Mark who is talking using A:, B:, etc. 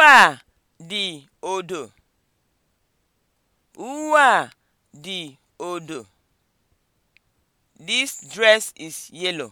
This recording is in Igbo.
A: Uwe a dị odo. Uwe a dị odo. This dress is yellow.